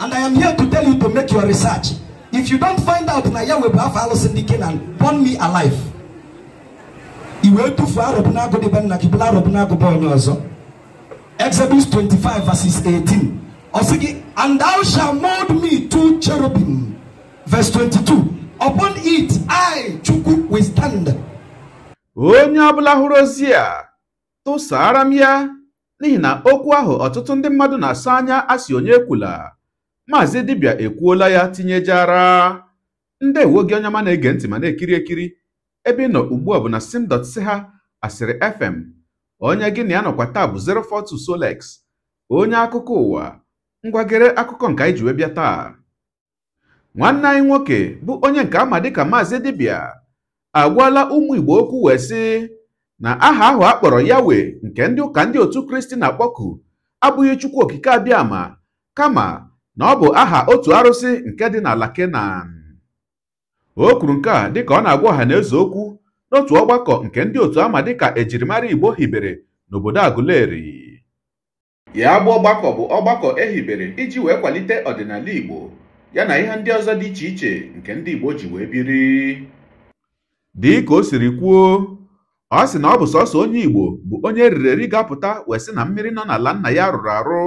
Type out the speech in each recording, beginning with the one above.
And I am here to tell you to make your research. If you don't find out na ya wee bụ afọ alụsị ndị Kenan, burn me alive. I wee tufuo arọbụ n'agụ dịbe nna gị bụla arọbụ n'agụba onye ọzọ. Exodus 25 verses 18. Ọ and thou shall mold me two cherubim. Verse 22. Upon it I Chukwu will stand. Onye ọbụla hụrụ ozi a tụsara ya n'ihi na okwu ahụ ọtụtụ na-asa anya asị maazị dibịa ekwuola ya tinyejara ndewo gị onye ma na-ege ntị ma na-ekiri ekiri ebe ị nọ ugbu a bụ na sim.si ha asịrị fm onye gị na ya nọkwa taa bụ 042 Solex onye akụkọ ụwa ngwagere akụkọ nke anyị ji wee bịa taa nwanne anyị nwoke bụ onye nke ama dịka maazị dibịa agwala ụmụ igbo okwu wee sị na aha ahụ a kpọrọ yawe nke ndị ụka ndị otu kristi na-akpọku abụghị chukwu okike abịa ama. kama na ọ bụ aha otu arụsị nke dị n'ala Kenan o kwuru nke a dịka ọ na-agwa ọha na okwu n'otu ọgbakọ nke ndị otu ama dịka ejirimara Igbo hibere n'obodo Aguleri ya bụ ọgbakọ bụ ọgbakọ ehibere iji wee kwalite ọdịnala Igbo ya na ihe ndị ọzọ dị iche iche nke ndị Igbo ji wee biri dị ka o siri kwuo ọ sị na ọ bụ sọsọ onye Igbo bụ onye eriri eri wee sị na mmiri nọ n'ala nna ya rụrụ arụ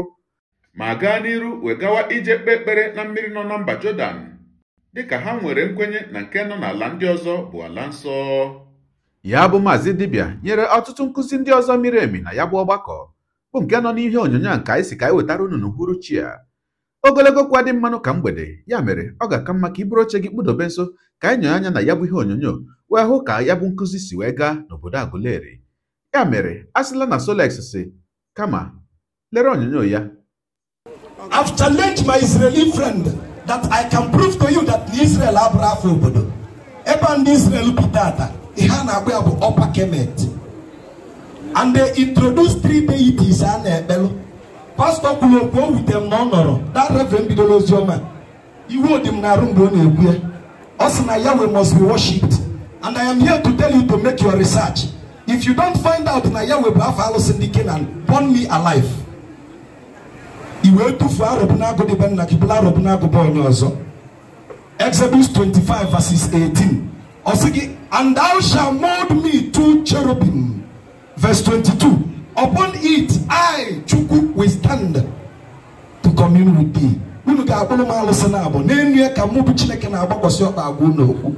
ma gaa n'iru wee gawa ije kpee ekpere na mmiri nọ na mba Jọdan dịka ha nwere nkwenye na nke nọ n'ala ndị ọzọ bụ ala nsọ ya bụ maazị dibịa nyere ọtụtụ nkụzi ndị ọzọ miri emi na ya bụ ọgbakọ bụ nke nọ n'ihe onyonyo a nke anyị si ka anyị wetara unu chi a ogologo kwa dị mmanụ ka mgbede ya mere ọ ga-aka mma ka i oche gị kpụdobe nso ka anyị nyonye anya na ya bụ ihe onyonyo wee hụ ka ya bụ nkụzi si wee gaa n'obodo Aguleri ya mere a sịla na Solex si kama lere onyonyo ya I've challenged my Israeli friend that I can prove to you that Israel abụrụ afọ obodo ebe ndị Israel bi tata ihe a na-agba ya bụ ọpa kemet and they introduce three deities a na-ekpelụ pastọ kwuru okwu o wute m na ọ nọrọ that reverend bidoro oziọma iwe odi m na-arụ mgbe ọ na-ekwu ya ọ sị na Yahweh must be worshipped and I am here to tell you to make your research if you don't find out na Yahweh bụ afọ alụsị ndị Kenan burn me alive i wee tufuo arọbụnagụ dịbe nna gị bụla onye ọzọ Exodus 25 verses 18 ọ sị gị and thou shalt mold me to cherubim verse 22 upon it I Chukwu will stand to commune with thee unu ga-akpụrụ m alụsị na abụ n'elu ya ka mụ bụ Chineke na-agbakwasị ọkpa agwa n'okwu.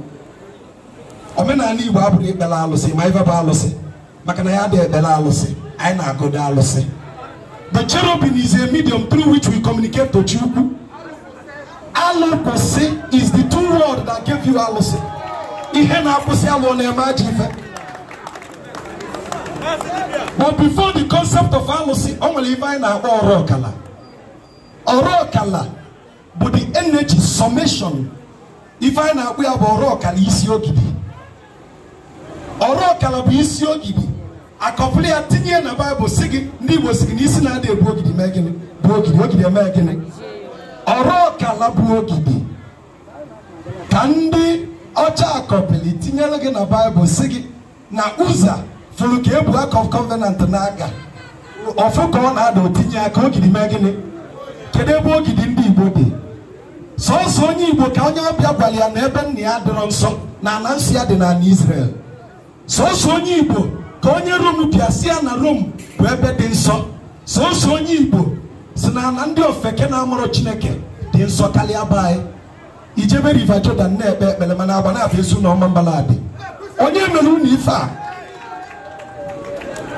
omenala Igbo abụghị ekpere alụsị ma ife bụ alụsị maka na ya dị ekpere alụsị anyị na agụdị alụsị The cherubim is a medium through which we communicate to Chukwu. Alụkwụsị is the two word that gave you alụsị. Ihe na-akwụsị alụ na-eme ajọ ife. But before the concept of alụsị, o nwere ife anyị na-akpọ ọrụ ọkala. Ọrụ ọkala bụ the energy summation. Ife anyị na-akpọ ya bụ ọrụ ọkala isi ogidi. Ọrụ ọkala bụ isi ogidi. akọpụlụ ya tinye na baịbụl si gị ndị igbo si gị n'isi na-adị ebu ogidi mee gịnị bụ ogidi ogidi eme gịnị ọrụ ọkala bụ ogidi ka ndị ọcha akọpịlị tinyere gị na baịbụl si gị na ụza fụrụ ka ebu aka of covenant ọfụ ka ọ na-ada otinye aka ogidi mee gịnị kedu ebe ogidi ndị igbo dị sọọsọ onye igbo ka onye ọbịa gwara ya na ebe nna ya dịrọ nsọ na ala nsọ ya dị n'ala Izrel sọọsọ onye igbo ka onye rom bịa si ya na rom bụ ebe dị nsọ sọsọ onye igbo si na ndị ofeke na-amụrụ chineke dị nsọ karịa be anyị ijebe river jordan na-ekpe ekpere mana agba na-abịa ezu na ọma adị onye mere unu ife a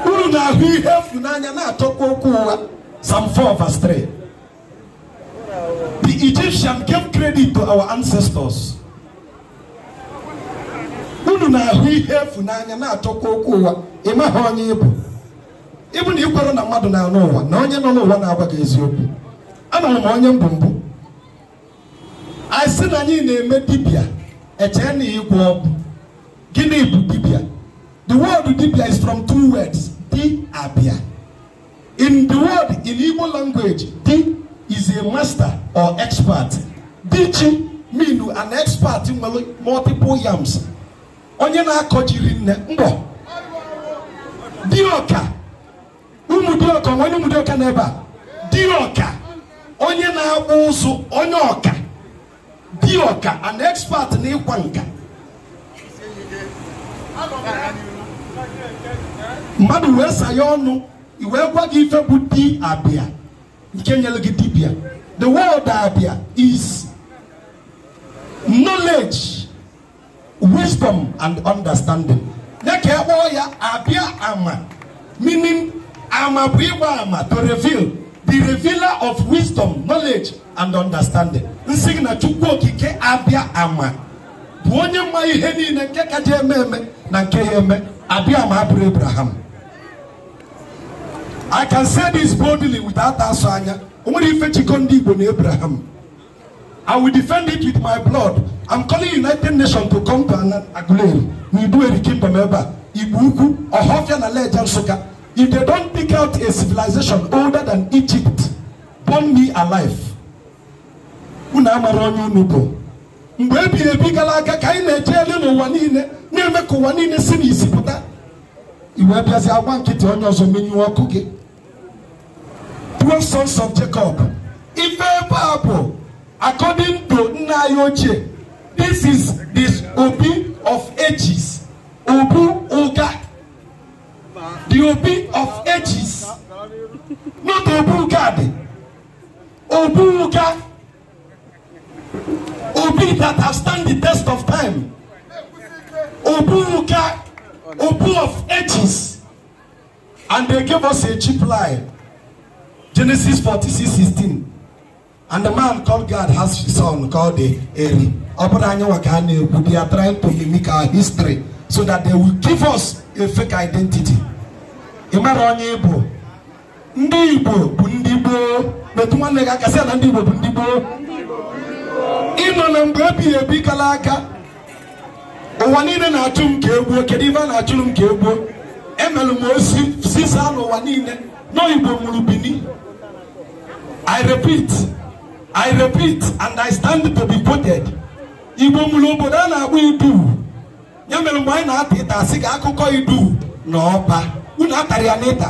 unu na-ahụ ihe efu n'anya na-atọkwa okwu ụwa sam 4 verse 3 the Egyptian gave credit to our ancestors unu na-ahụ ihe efu n'anya na achọkwa okwu ụwa ị maghị onye ịbụ ịbụ na ịkwere na mmadụ na-anụ ụwa na onye nọ n'ụwa na-agwa gị eziokwu ana m onye mbụ mbụ asị na anyị na-eme dibịa echee na ịgwọ ọbụ gịnị bụ dibia the word dibia is from two words di abịa in the word in Igbo language di is a master or expert dichi mean an expert nwere multiple yams onye na akọjiri jiri nne mgbọ dịọka ụmụ ọka onye ụmụ na n'ebe a ọka onye na-akpụ ụzụ onye ọka dịọka an expert n'ịkwa nka mmadụ wee saya ọnụ wee gwa gị ife bụ di abịa nke nyere gị dibịa the word abịa is knowledge wisdom and understanding nye ka e ya abịa ama meaning ama bụ ịgba ama to reveal the revealer of wisdom knowledge and understanding nsị gị na chukwu okike abịa ama bụ onye mma ihe niile nke kaja eme eme na nke ya eme abịa ama abụrụ abraham i can say this boldly without asụ anya o nwere ife ndị igbo na abraham I will defend it with my blood. I'm calling United Nations to come to Aguleri. We do a Kimba Ibuku, or and Nale Jansuka. If they don't pick out a civilization older than Egypt, burn me alive. Unama ronyo nubo. unu bụ. Mgbe ebighị ebi gara aga ka anyị na-eje elu n'ụwa niile na-eme ka ụwa niile si n'isi pụta. Iwe bịazi agwa nkịtị onye ọzọ menyuo ọkụ gị. Twelve sons of Jacob. Ife ebe a bụ according to nna this is this obi of ages obu ụga the obi of ages not obu ụga dị obu ụga obi that have stand the test of time obu ụga obu of ages and they gave us a cheap lie genesis forty six sixteen. and the man called God has his son called Eri ọ bụrụ anyị nwa ka ha na-ekwu they are trying to mimic our history so that they will give us a fake identity ị mara onye bu ndị Igbo bụ ndị gboo metụ nwanne gị aka sị na ndị Igbo bụ ndị gboo ịnọ na mgbe ebighị ebi kala aka ụwa niile na-achụ m ka egbuo kedu ibe a na achụ m ka egbuo emelụ m osi sisa n'ụwa niile n'oyibo mụrụ Bini I repeat I repeat and I stand to be quoted Igbo mụrụ obodo a na-agba idu ya mere mgbe anyị na-ata ịta asị ka akụkọ idu na ọba unu atara ya n'ịta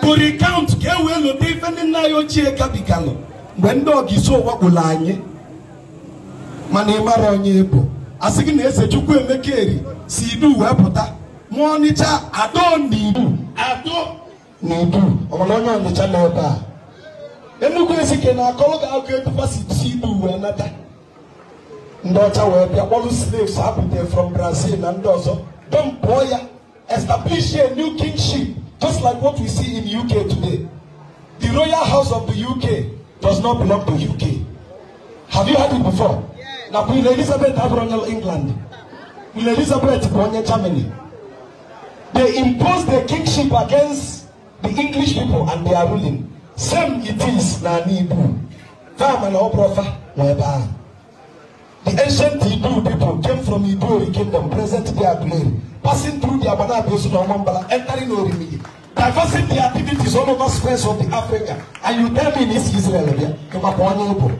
to recount ka e wee lote ife ndị nna anyị ochie gabigalụ mgbe ndị ọgisi ụwa gwụrụ anyị mana ị mara onye bụ asị gị na eze chukwu emeka eri si idu wee pụta ma ọnịcha ado na idu ado na idu ọ onye ọnịcha n'ebe a enu kwe si ke na akọrọ ga agụ edufa si chi ibu uwe nata ndị ọcha wee bịa kpọrụ slaves apụta from brazil na ndị ọzọ don pụọ ya establish a new kingship just like what we see in uk today the royal house of the uk does not belong to uk have you heard it before na queen elizabeth abụrụ england queen elizabeth bụ onye germany they imposed their kingship against the english people and their ruling Some it is na Nibu. Farm and Oprofa, whereby. The ancient Hebrew people came from Hebrew kingdom, present day Adumeri, passing through the Abana Abiyosu to Amambala, entering Orimi, diversing their activities all over squares of the Africa. And you tell me in East Israel, yeah, to Mapone Ibo.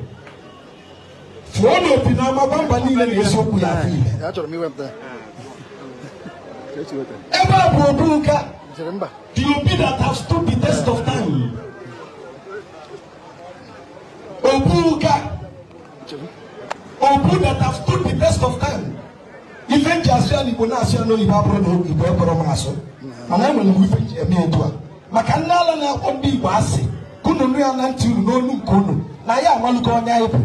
Fúwọ́nù òbí náà máa bá ń bá nílẹ̀ ní Yéṣu kù láàfin ilẹ̀. Ẹ bá àbúrò dúró ká. The Obi that has stood the test of time. Obu that have stood the test of time. Ife ya na Igbo na ya asụ mana enwere m eme maka na-akpọ ndị asị unu nụ na na ya amalụgo onye anyị bụ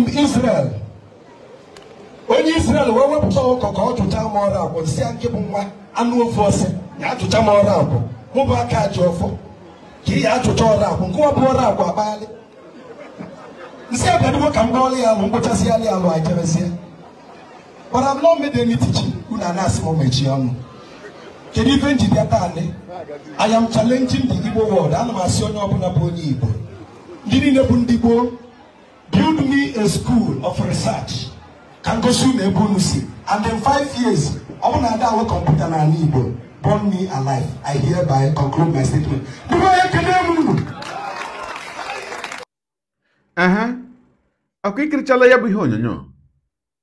m Israel onye Israel wee wepụta ka ọ m ọrụ si ya nwa anụ ofe m ọrụ ji ọfọ ka ị ya achụcha ọrụ akwụ nke ọbụ ọrụ akwụ akpaghalị nsị abịadugo ka m gbaọlụ ya alụ mkpochasịghalị alụ ajebezie but Bara not made any teaching unu ana-asị m mechie ọnụ kedu ife njide taa nị I am challenging ndị Igbo world ana m asị onye ọbụla bụ onye Igbo ndị niile bụ ndị gboo build me a school of research ka ngosi unu ebe unu si and in five years ọ bụ na ada awe kọmputa n'ala Igbo burn me alive. I hereby conclude my statement. aha ọkụ ikirichala ya bụ ihe onyonyo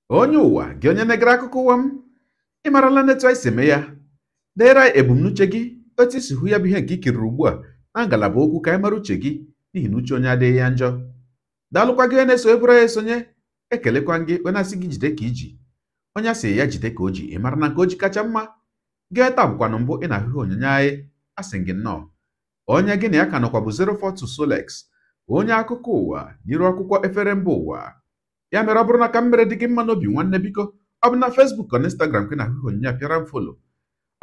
onye ụwa gị onye na egara akụkọ ụwa m ị marala netu anyị si eme ya deere anyị ebumnuche gị otu isi hụ ya bụ ihe nke ikiriri ugbu a na ngalaba okwu ka anyị mara uche gị n'ihi na uche onye adịghị ya njọ daalụkwa gị onye na-eso ebụrụ ya esonye ekelekwa gị onye asị gị jide ka iji onye asị ya jide ka o ji ị mara na nke o ji kacha mma Nke taa bụkwanụ mbụ ị na-ahụ onyinye anyị asị gị nnọọ onye gị na ya ka nọkwa bụ 042 Solex onye akụkọ ụwa n'iru akwụkwọ efere mba ụwa ya mere ọ bụrụ na ka m dị gị mma n'obi nwanne biko ọ bụ na Facebook na Instagram ka ị na-ahụ ihe onyinye a pịara m folo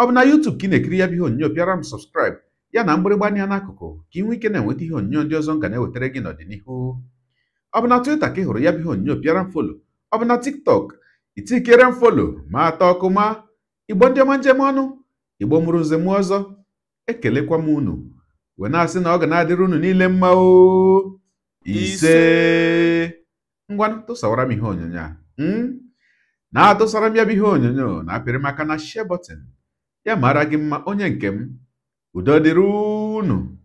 ọ bụ na YouTube ka ị na-ekiri ya bụ ihe onyinye pịara m sọbskraịbụ ya na mgbịrịgba anya n'akụkụ ka ị nwee ike na-enweta ihe onyinye ndị ọzọ nga na-ewetara gị n'ọdịnihu ọ bụ na Twitter ka ị hụrụ ya bụ ihe onyinye pịara m folo ọ bụ na TikTok itikere m folo ma atọ ọkụ ma igbo ọma njem ọnụ igbo mụrụ nze ọzọ ekelekwa m unu wee na-asị na ọ ga na-adịrị unu niile mma o ise ngwa tụsawara m ihe onyonyo a hmm? na-atụsara m ya bụ ihe onyonyo na-apịrị m aka na share button ya mara gị mma onye nke m udo dịrị unu